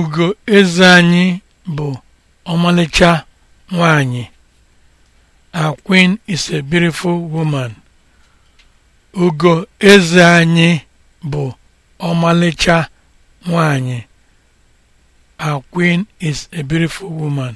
ugo eze anyị bụ ọmalịcha nwanyị a queen is a beautiful woman a queen is a beautiful woman